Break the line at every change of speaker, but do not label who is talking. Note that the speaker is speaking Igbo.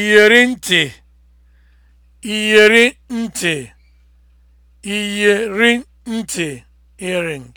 iyeri ntị iyeri ntị iyeri ntị earring